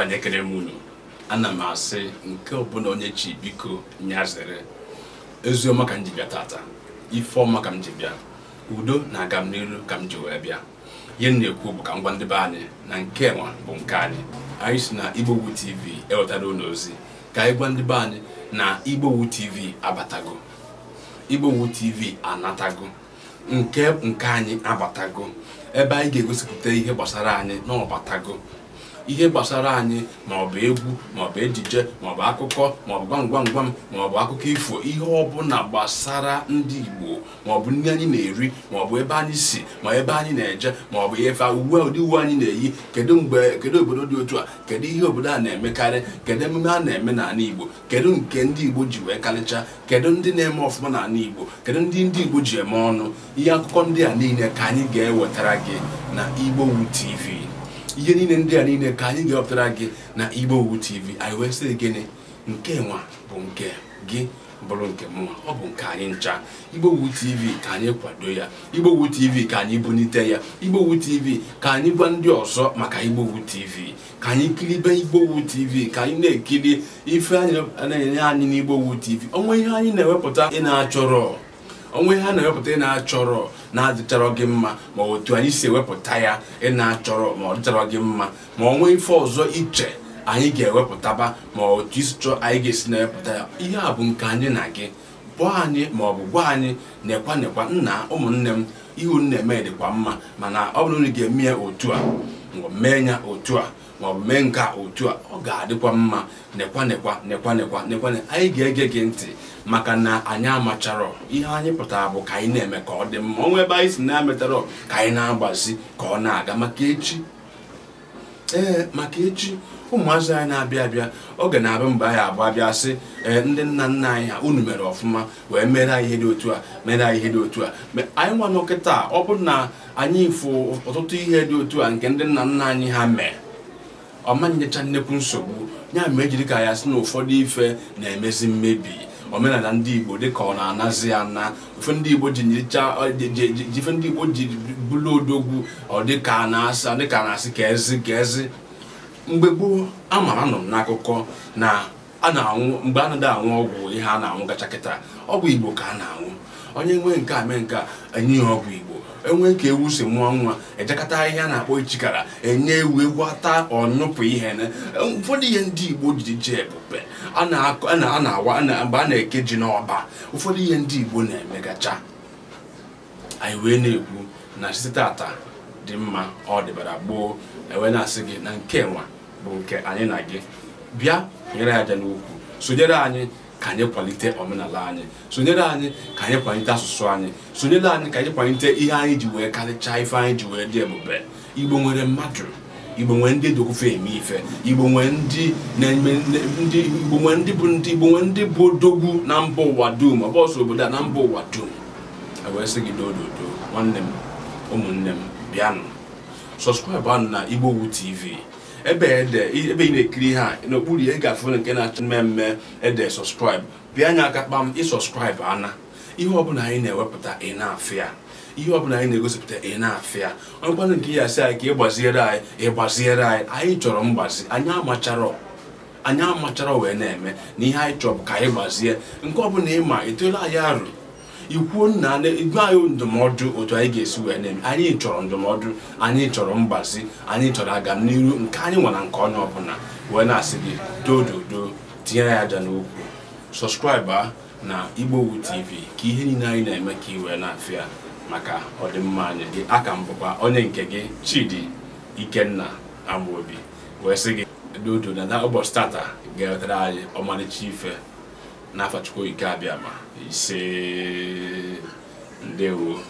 onye kere m unu ana m asị nke ọbụla onye chi biko nyazere ezioma ka m ji bịa tata ifeọma ka m ji bịa udo na agam n'iru ka m ji wee bịa ihe m na-ekwu bụ ka m gwa ndị be anyị na nke nwa bụ nke anyị anyị si na igbowu tv ewetara ụlọ ozi ka anyị gwa ndị be anyị na igbowu tv abatago igbowu tv anatago nke nke anyị abatago ebe anyị ga-egosipụta ihe gbasara anyị na ọbatago ihe gbasara anyị maọbụ egwu maọbụ ejije maọbụ akụkọ maọbụ gwamgwamgwam maọbụ akụkọ ifo ihe ọbụla gbasara ndị Igbo maọbụ ndị anyị na-eri maọbụ ebe anyị si ma ebe anyị na-eje maọbụ efe uwe ụdị uwe anyị na-eyi kedu mgbe kedu obodo dị otu a kedu ihe obodo a na-emekarị kedu emume a na-eme n'ala Igbo kedu nke ndị Igbo ji wee karịcha kedu ndị na-eme ọfụma n'ala Igbo kedu ndị ndị Igbo ji eme ọnụ ihe akụkọ ndị a niile ka anyị ga-ewetara gị na wu TV ihe niile ndị a niile ka anyị ga-ewepụtara gị na Igbo owu TV anyị wee sị gịnị nke nwa bụ nke gị bụrụ nke mụnwa ọ bụ nke anyị ncha Igbo owu TV ka anyị kwado ya Igbo owu TV ka anyị bunite ya Igbo owu TV ka anyị gwa ndị ọzọ maka Igbo owu TV ka anyị kiribe Igbo owu TV ka anyị na-ekiri ife anyị na-enye anyị n'Igbo owu TV onwe ihe anyị na-ewepụta ị na-achọrọ onwe ihe a na-ewepụta ị na-achọrọ na-adịchọrọ gị mma ma otu anyị si ewepụta ya ị na-achọrọ ma ọ dịchọrọ gị mma ma ọ nwee ife ọzọ iche anyị ga-ewepụtaba ma otu isi chọọ anyị ga-esi na-ewepụta ya ihe a bụ nke anyị na gị bụọ anyị ma ọ bụ gwa anyị nekwa nekwa nna ụmụnne m ihu nna eme dịkwa mma mana ọ bụrụ na ị ga-eme ya otu a maọbụ mee otu a maọbụ mee nke otu a ọ ga-adịkwa mma nekwa nekwa nekwa nekwa anyị ga-ege gị ntị maka na anyị amachara ihe anyị pụtara bụ ka anyị na-eme ka ọ dị mma ọnwa ebe anyị si na-ametara ka anyị na-agbazi ka ọ na-aga maka maka echi ụmụazị anyị na-abịa abịa oge na-abịa mgbe anyị abụ abịa sị ee eh, ndị nna nna anyị ha unu mere ọfụma wee mere ihe dị otu a mere ihe dị otu a anyị nwa n'okịta ọ bụrụ na anyị fụ ọtụtụ ihe dị otu a nke ndị nna nna anyị ha mee ọma nyecha nnekwu nsogbu ya ma ejiri ka ya sị na ụfọdụ ife na-emezi mmebi omenala ndị igbo dịka ọ na-anazi ana ife ndị igbo ji ife ndị igbo ji bụlụ odogwu ọ na-asị ka ezi ka ezi mgbe gboo amara nọ m n'akụkọ na a na-anwụ mgbe anadị anwụ ọgwụ ihe a na-anwụ gacha kịta ọgwụ igbo ka a na-anwụ onye nwee nke a mee nke a enye ya ọgwụ igbo enwe ka ewu si mụọ nwa ejekọta a na-akpọ ichikara enye ewu egwu ata ọnụpụ ihe ụfọdụ ihe ndị igbo ji ji ebube a na-awa mgbe a na-eke ji n'ọba ụfọdụ ihe ndị igbo na-emegacha anyị wee na-ekwu na site tata dị mma ọ dịbara gboo enwe na-asị gị na nke nwa bụ nke anyị na gị bịa nyere aja n'ukwu sonyere anyị ka anyị kwalite omenala anyị sonyere anyị ka anyị kwalite asụsụ anyị sonyere anyị ka anyị kwalite ihe anyị ji wee karịchaa ife anyị ji wee dị ebube igbo nwere mmadụ igbo nwere ndị dogofe eme ife igbo nwere ndị na-eme ndị igbo nwere ndị bụ ndị igbo nwere ndị bụ dogwu na mba ụwa dum ọbọsọ obodo a na mba ụwa dum ewee sị gị dododo nwanne m ụmụnne m bịanụ sọskraịbụ anụ na igbowu tv ebe ebe ị na-ekiri ha n'okpuru ya ị ga-afụ nke na-achọ mmemme ede sọskraịbụ bịa anya aka kpam ịsọskraịbụ ana ihe ọbụla anyị na-ewepụta ị na-afụ ya ihe ọbụla anyị na-egosipụta ị na-afịa ọkwanụ nke ya sị anyị ka ị anyị ị anyị anyị chọrọ mgbazi anyị amachara anyị amachara wee na-eme na ihe anyị chọrọ ka anyị gbazie nke ọbụla ịma etola anyị arụ ikwuo nna gwa anyị ndụmọdụ otu anyị ga-esi wee na-eme anyị chọrọ ndụmọdụ anyị chọrọ mgbazi anyị chọrọ aga n'ihu nke anyị nwara nke onye ọbụla wee na-asị gị dododo tinye ya aja n'okwu sọskraịba na igbowu tv ka ihe niile anyị na-eme ka iwee na-afịa maka ọdịmma anyị gị aka m bụkwa onye nke gị chidi ikenna amobi wee sị gị dodo na ụbọchị tata ga-ewetara anyị ọmalịcha ife n'afachukwu ike abịa ma ise ndewo